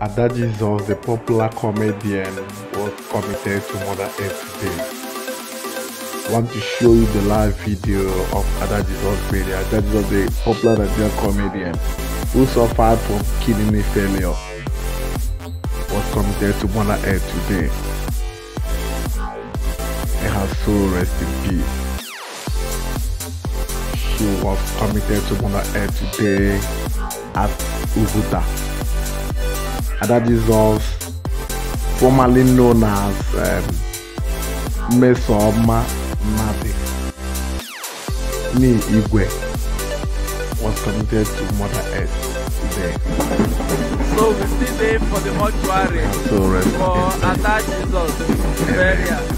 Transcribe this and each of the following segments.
Ada Jesus, the popular comedian, was committed to Mother Earth Day. I want to show you the live video of Ada Jesus Bailey. the popular Nigerian comedian who suffered from kidney failure, was committed to Mother Earth today. May her soul rest in peace. She was committed to Mother Earth today at Ubuta. Adadizor's, formerly known as um, Mesoma Mabi, me Igwe, was committed to Mother Earth today. So we still aim for the mortuary so for Adadizor's burial.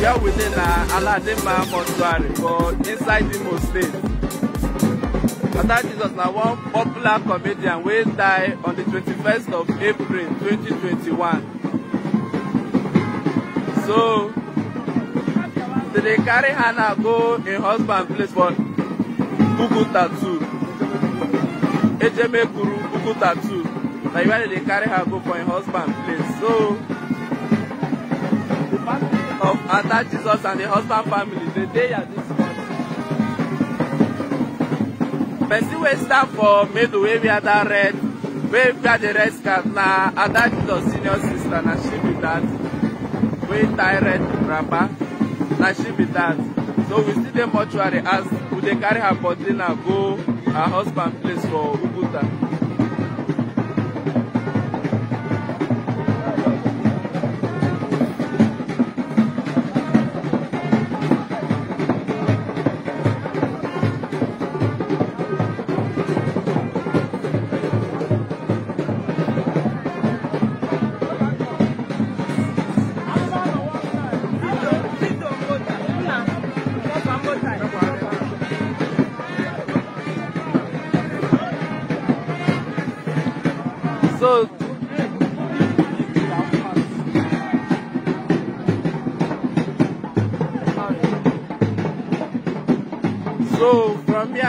Here within uh, Aladima mortuary for inside the State. Oga Jesus na one popular comedian wey die on the 21st of April 2021. So, they dey carry Hannah go im husband place for Buku Tattoo. Ejeme Kuru Buku Tattoo. Na where they dey carry her go for im husband place. So, the family of Ada Jesus and the husband family dey dey at this person wey stand for middle wey wear that red wey wear the red scarf na ada jesus senior sister na she be that wey tie red wrapper na she be that so we still dey mortuary as we dey carry her body now go her husband place for uguta.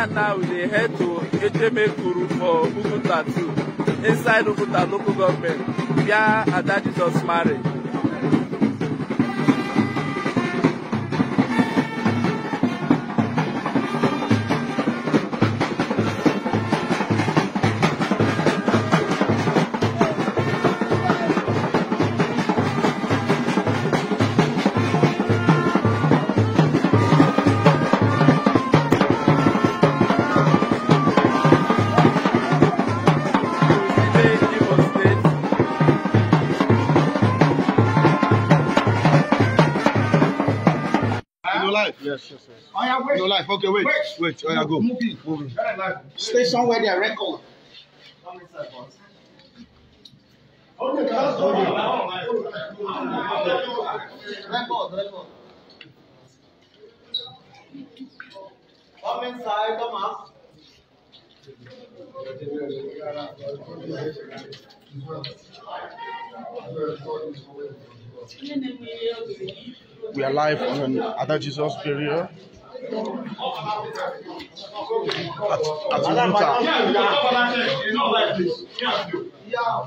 and I we dey head to Ejemekuru for Bukuta too, inside Bukuta local government, where Ada Jesus marry. yes, yes, Oh, yeah, wait. No life. Okay, wait. Wait. wait. Oh, yeah, go. Move in. Stay somewhere They are Record. Okay, that's okay. Record, record. Come inside, come up. We are live on other Jesus burial at at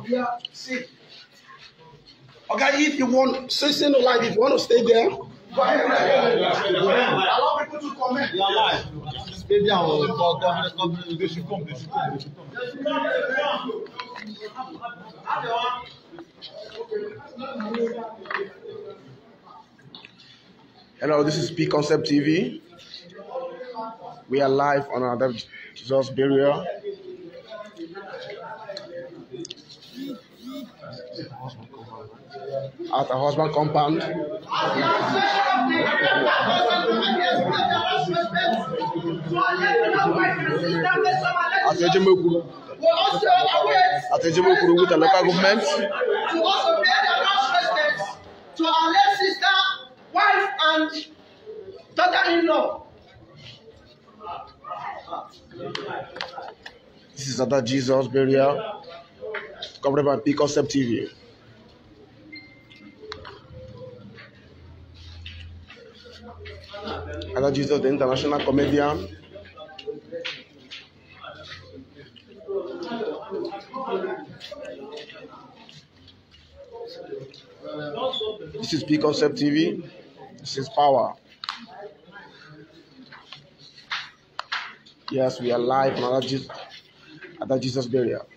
Uta. Okay, if you want, since you know, like, if you want to stay there, allow people to comment. Maybe I will talk. They Hello, this is P Concept TV. We are live on another Jesus burial. At a husband compound. At Ejimokuru. At Ejimokuru with the local government. and daughter-in-law. This is Ada Jesus burial. Covered by P Concept TV. Ada Jesus, the international comedian. This is P Concept TV. It's His power. Yes, we are alive now Jesus, at that Jesus burial.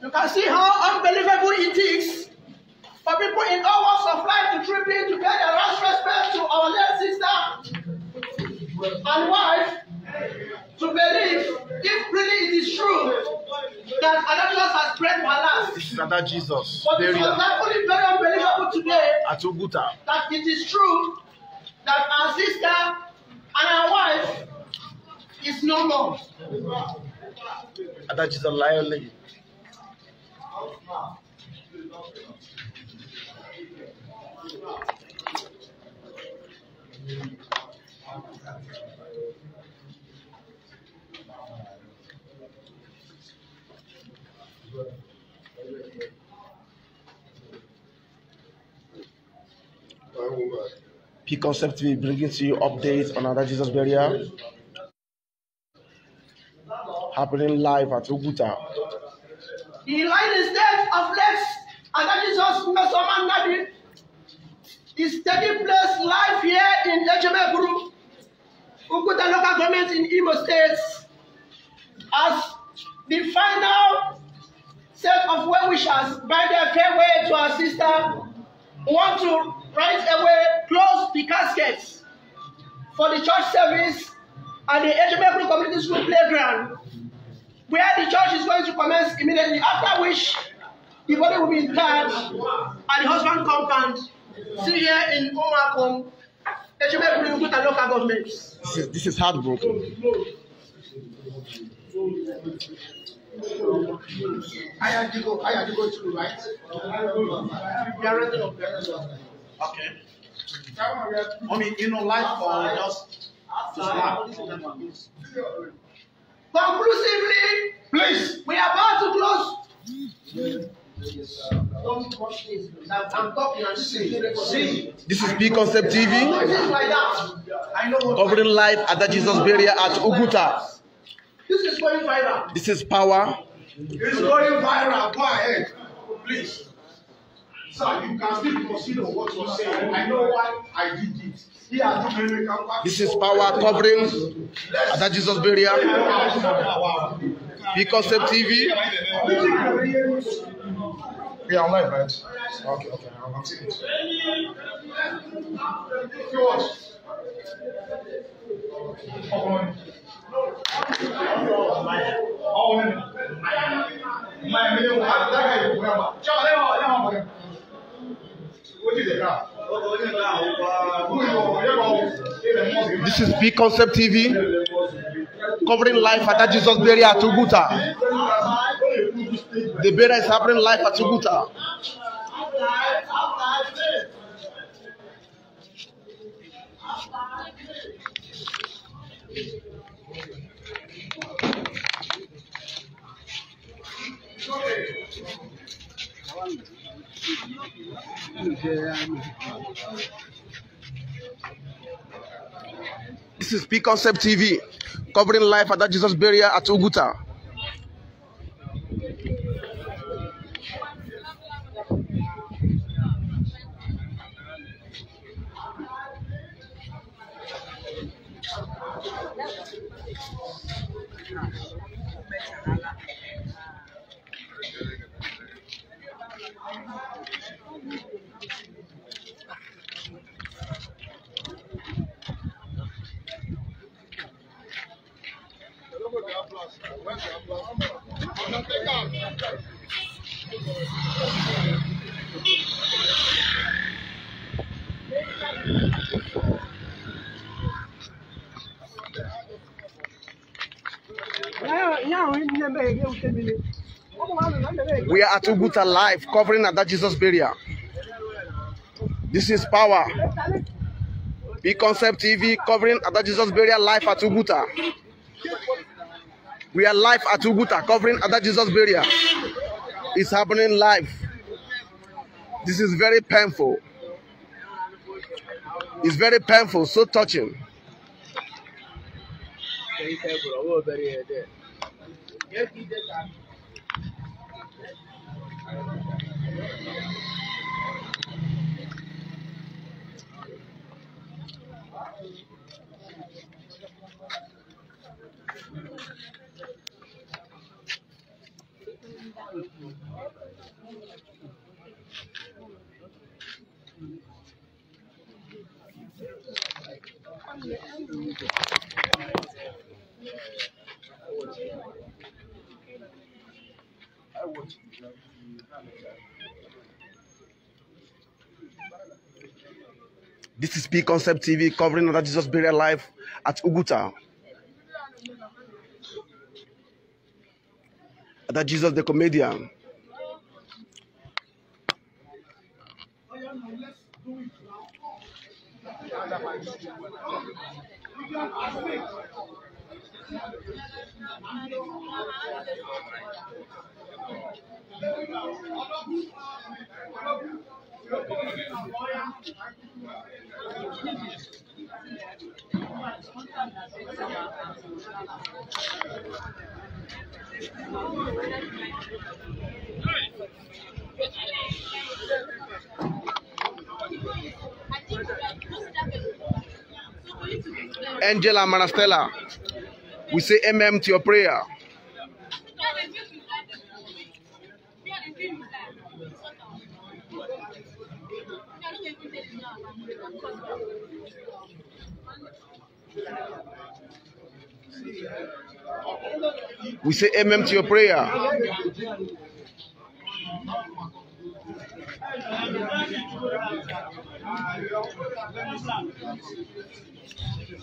You can see how unbelievable it is for people in all walks of life to trip in to pay their last respect to our late sister and wife to believe if really it is true that Ananias has prayed for last. This is another But it was only very unbelievable today. At That it is true that our sister and our wife is no more. And that is a liar lady. Thank you. Key Concept TV bringing to you update on another Jesus burial happening live at Oguta. The line is death of Lex Another Jesus Mesoman Nabi is taking place live here in Ejemeguru, Oguta local government in Imo State as the final set of well-wishers by their farewell to our sister We want to right away close the caskets for the church service and the Ejimekuru Community School playground, where the church is going to commence immediately, after which the body will be interred at the husband compound, still here in Umakom, Ejimekuru Kuta local government. This is, this is heartbroken. I Ayadigo to go. I the right. Director of the Okay. I mean, you know, life or just Conclusively, please, we are about to close. Don't watch this. I'm talking and see. See, this is P Concept TV. Covering life at the Jesus Barrier at Uguta. This is going viral. This is power. It's going viral. Go ahead, please. Sir, you can still proceed on what you're saying. I know why I did it. This is power covering Ada Jesus burial. Because of TV. We are live, right? Okay, okay, I'll continue. George. This is Big Concept TV covering life at Jesus' burial at Uguta. The burial is happening live at Uguta. This is P Concept TV covering life at that Jesus burial at Uguta. Thank you. We are at Uguta Live covering at that Jesus burial. This is power. Big Concept TV covering at that Jesus burial live at Uguta. We are live at Uguta covering at that Jesus burial. It's happening live. This is very painful. It's very painful, so touching. Gel gideceğiz abi. This is P Concept TV covering another Jesus burial life at Uguta. That Jesus the comedian. Angela Manastella, we say MM to your prayer. Yeah. We say amen to your prayer.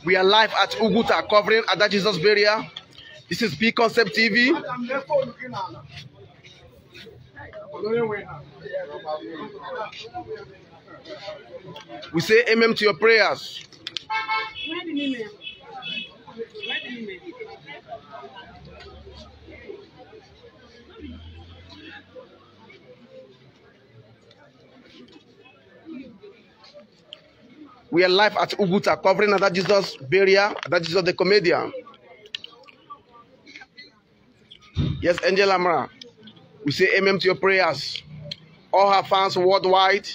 We are live at Uguta covering at that Jesus burial. This is P Concept TV. We say amen to your prayers. We are live at Uguta, covering that Jesus barrier. That Jesus the comedian. Yes, Angel Amara. We say amen to your prayers. All her fans worldwide.